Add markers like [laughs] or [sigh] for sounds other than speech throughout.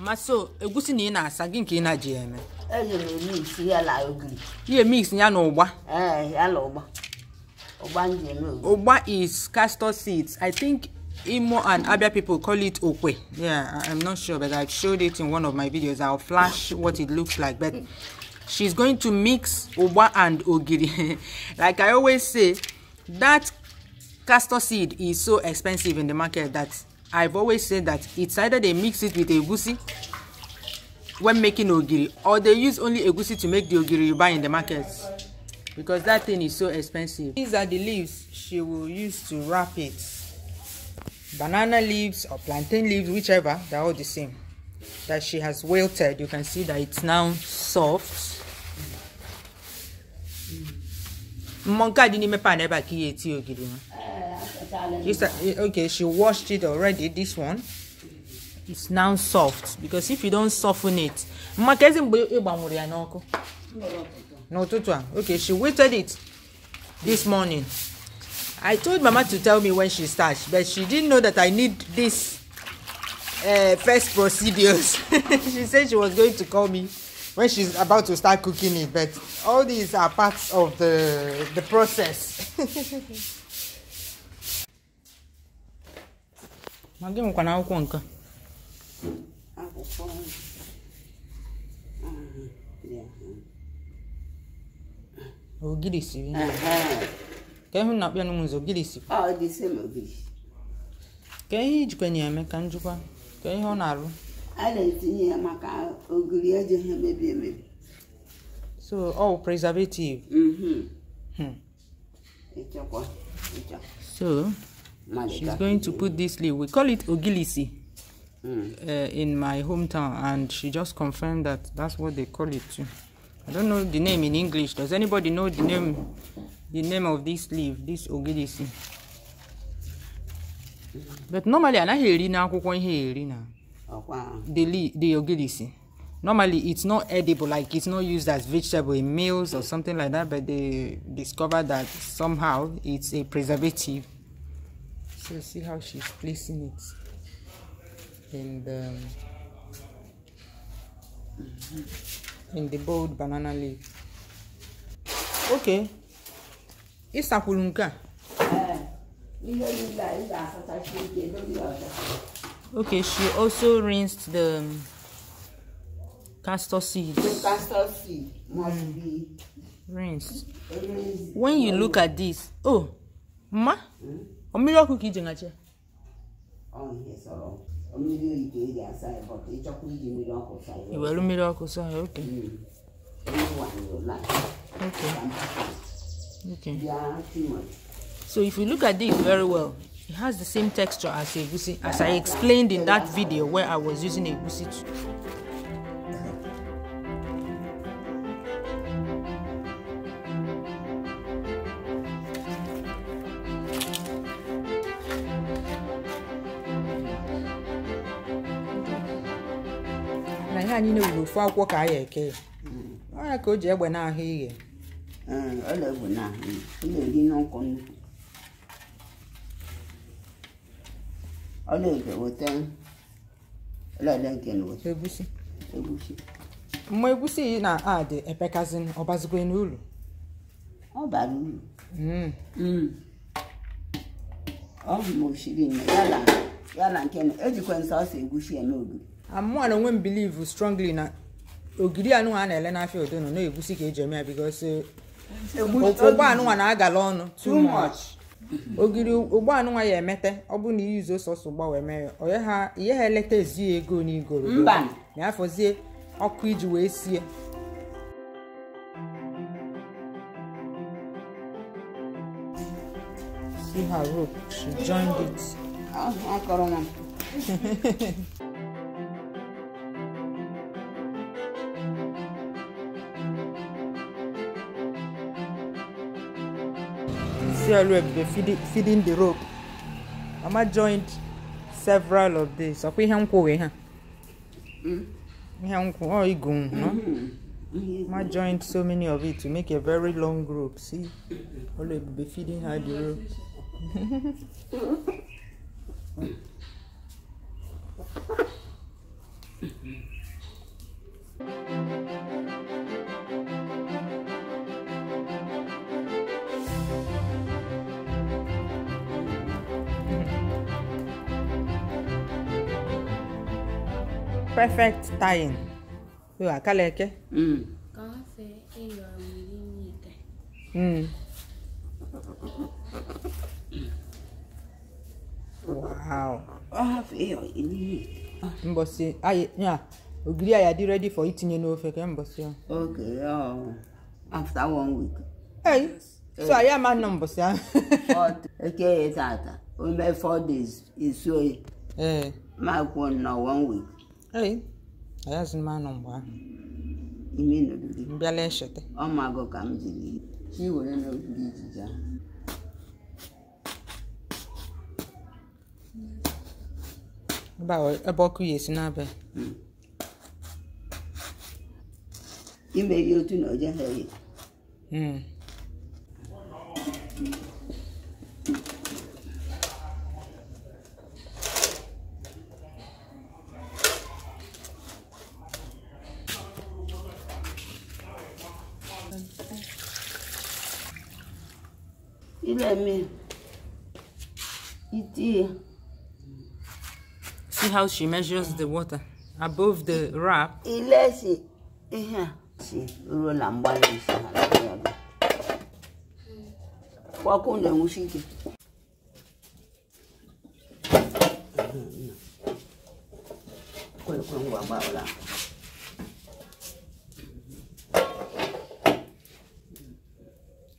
Maso, egusi ni na asa gị nke ị na-aji eme. Eji mix ya na ogiri. Ihe mix ya na ụgba. Ee, ya na ụgba. Ụgba m ji eme ogiri. Ụgba is castor seeds. I think Imo and Abia people call it okwe. Yeah, I'm not sure, but I showed it in one of my videos. I'll flash what it looks like. But she's going to mix ụgba and ogiri. [laughs] like I always say, that castor seed is so expensive in the market that I've always said that it's either they mix it with egusi when making ogiri or they use only egusi to make the ogiri you buy in the market because that thing is so expensive. These are the leaves she will use to wrap it. Banana leaves or plantain leaves, whichever, they're all the same. That she has wilted. You can see that it's now soft. Mọ̀nká dín ní mẹ́pà náà bá kí etí ògiri wọn. You start, uh, eh, okay, she washed it already. This one it's now soft because if you don't soften it, mmakezi mgbe ịgbanwụrụ okay she waited it this morning. I told Mama to tell me when she starts, but she didn't know that I need this uh, first procedures. [laughs] she said she was going to call me when she's about to start cooking it, but all these are parts of the the process. [laughs] ma gị nwekwana akwụkwọ nke akwụkwọ ogiri siri ka ịhụ na kpịanụ m nzọ ogiri ka ihe ijikwanye eme ka njikwa ka ihe ọ na-arụ a na maka ogiri emebi so ọ oh, preservative mm-hmm. mm. e so She's going to put this leaf. We call it ogilisi mm. uh, in my hometown, and she just confirmed that that's what they call it too. I don't know the name in English. Does anybody know the name, the name of this leaf, this ogilisi? But normally, i eri not ihe eri na the the ogilisi. Normally, it's not edible, like it's not used as vegetable in meals or something like that. But they discovered that somehow it's a preservative. so see how she's placing it and um, in the bold banana leaf okay ịsakwuru nke a okay she also rinsed the um, castor seeds the castor seed must mm. be rinsed when you look at this oh ma mm? mmiri ọkụ ka iji ngache iwere mmiri ọkụ sọ ya oke okay hmm. so if you look at this very well it has the same texture as egusi as i explained in that video where i was using egusi to anyị na-ewuru ofu akwụkwọ ka anyị ya eke ya ọya ka o ji egbe n'ahụ ighe egusi mgbe egusi na adị epekazin ọbazigwe hmm. hmm. ọ bụ ma o siri ya na nke na ejikwa nsọ ọsọ egusi eme ogiri Amụọ na onwe m bilivu strongly na ogiri anụnwa a na-ele n'afịa odonu na-egusi ka eji eme ya eh, Ogiri ụgbọ anụnwa na-agala ọnụ too much ogiri ụgbọ anụnwa ya emete ọ bụ na iyi izu sọsọ ụgbọ wee mee ya ihe ha eleta ezi ego n'igoro ma ya ọkụ iji wee sie see her rope [laughs] CLF dey feeding, feeding the rope. Mama joined several of these. Ọ̀pẹ ihe nkwụ wee ha. Hmm? Ihe nkwụ ọ igu no? Mama hmm. joined so many of it to make a very long rope. See, be feeding her the rope. [laughs] perfect tying yo akaleke mm. mm. wow Mbosi ya ogiri ya dị ready for itinye n'ofe ka mbọsị ya okay um, after one week hey so anyị ama nọ mbọsị ahụ eke ya o ome four days esuoyi ma kwuo na one week ee ayazi m anụ mgbe ahụ ime nọgide mbịala echeta ọmagụ ka m jiri iwere n'ogige ijiji ahụ ebe ọkụ ya esi n'abịa hmm. imeri otu na oje ha ya hmm. ilẹ̀ It is. See how she measures the water above the wrap. Ilẹ̀ ṣe See,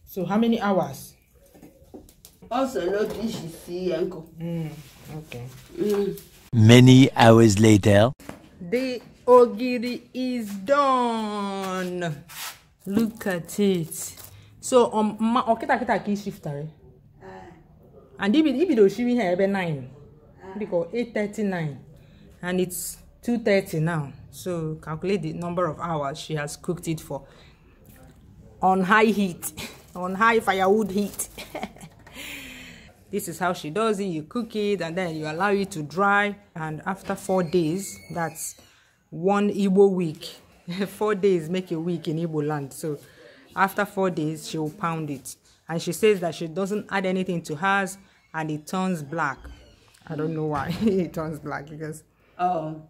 so how many hours also no dish you see uncle. Mm, okay. Mm. Many hours later. The ogiri is done. Look at it. So um ma okita oh, kita ki shifter. Eh? Ah. Uh. And ibi ibi do shiwi here ebe 9. Uh. Because nine and it's two thirty now. So calculate the number of hours she has cooked it for on high heat, [laughs] on high firewood heat. [laughs] this is how she does it you cook it and then you allow it to dry and after four days that's one Ibo week [laughs] four days make a week in Ibo land so after four days she will pound it and she says that she doesn't add anything to hers and it turns black i don't know why [laughs] it turns black because oh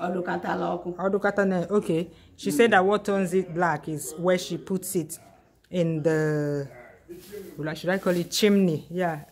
Odukata loku. Odukata ne. Okay. She said that what turns it black is where she puts it in the should I call it chimney? Yeah,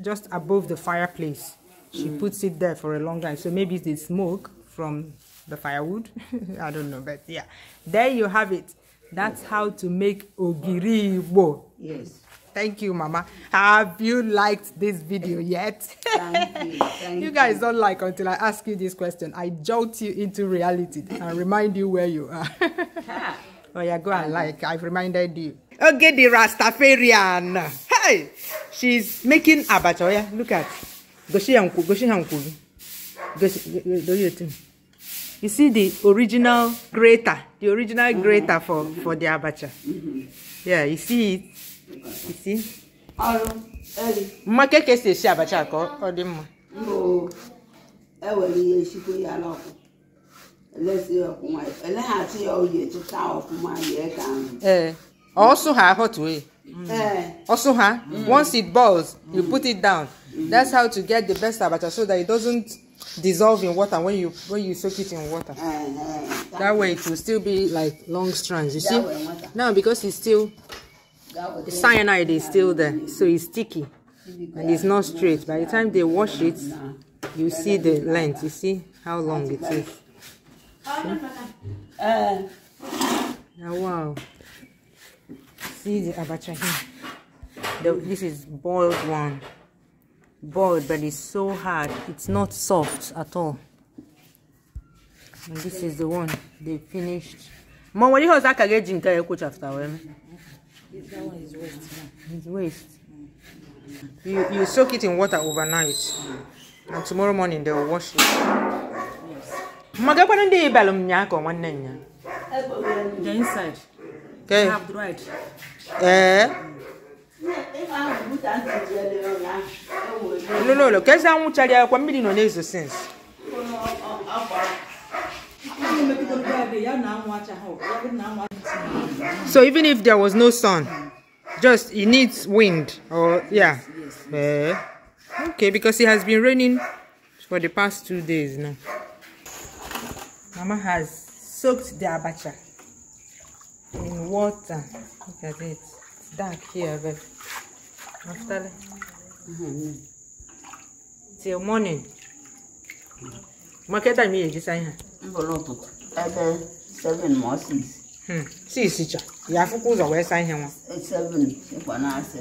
just above the fireplace. She mm. puts it there for a long time. So maybe it's the smoke from the firewood. [laughs] I don't know, but yeah. There you have it. That's how to make ogiri bo. Yes. Thank you, Mama. Have you liked this video yet? Thank you. Thank [laughs] you guys don't like until I ask you this question. I jolt you into reality and remind you where you are. [laughs] oh yeah, go and like. I've reminded you. Okay, the Rastafarian. Hey! She's making abacha. Oh, yeah, look at. Goshi and Goshi and Goshi. You see the original grater, the original grater for, for the abacha. Yeah, you see it. You see? Mma ka esi esi abacha ka ọ dị mma. Ewere ihe chikwa ya n'ọkụ. Elesi ọkụ nwayọ. Eleghachi ya oyi etuta ọfụma yie ka ahụ. Ee, eh, ọ sụ ha ahụ tụọ ya. Mm. Also, huh? Mm. Once it boils, you put it down. That's how to get the best abacha so that it doesn't dissolve in water when you when you soak it in water. Eh, eh. That way it will still be like long strands. You see? Now because it's still the cyanide is still there, mm. so it's sticky and it's not straight. By the time they wash it, you see the length. You see how long it is. See? Oh, wow see the abacha here this is boiled one boiled but it's so hard it's not soft at all and this is the one they finished mom what do you think you can coach after them. that one is waste it's waste you you soak it in water overnight and tomorrow morning they'll wash it yes. the inside Okay. Eh. No, no, no. Kesa amuchali kwa mbili no nezo sense. So even if there was no sun, just it needs wind or yeah. Yes, yes. Uh, okay, because it has been raining for the past two days now. Mama has soaked the abacha. in water. Look at it. It's dark here, but after mm -hmm. till morning. Market time here, this seven wee saa ihe nwa. Seven. na-asị.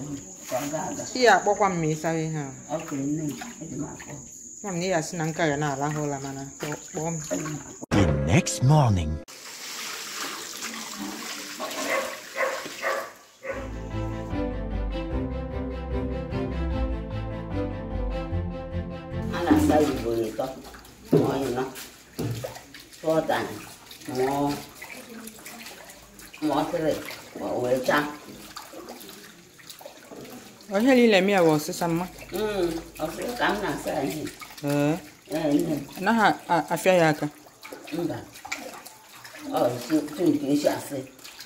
Chi ya akpọkwa ma ihe na ya na nka The tan mo mo tre mo wecha o he li mi awo sisa ma mm o se kam na sa ni eh eh na ha afia ya aka mba o si tu ni si ase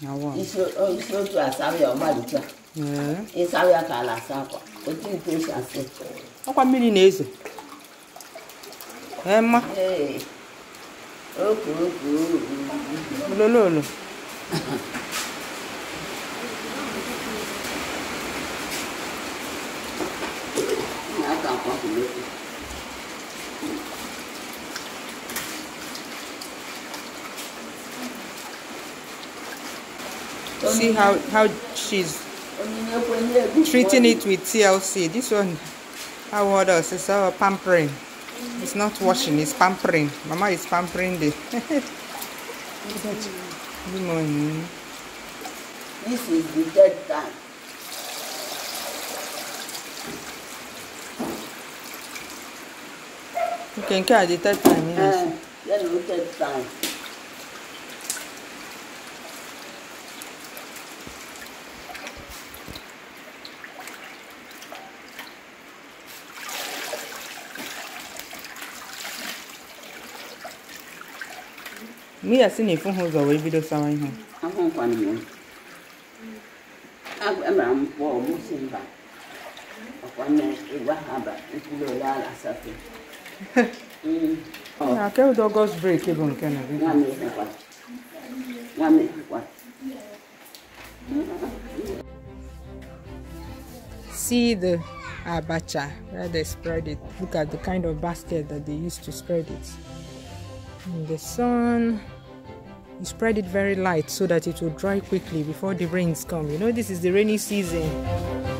na wa isi o isi o tu sa kwa o tu ni si ase o mmiri na eze eh ma eh no. see how how she's treating it with TLC. This one, how others is our pampering. It's not washing, it's pampering. Mama is pampering the. Good [laughs] morning. This is the dead time. You can carry the third time, yes. Uh, yeah, no, third time. mi yɛ se ne fo ho zɔ wɔ ebi do sawan ho. ahun kwan mu abu ɛmɛra mu bɔ ɔmu si mba ɔkwan yɛ ewa ha ba ekuro yɛ ala safi. na akɛw dɔ gɔs break ebo nke na See the abacha where they spread it. Look at the kind of basket that they used to spread it. In the sun you spread it very light so that it will dry quickly before the rains come you know this is the rainy season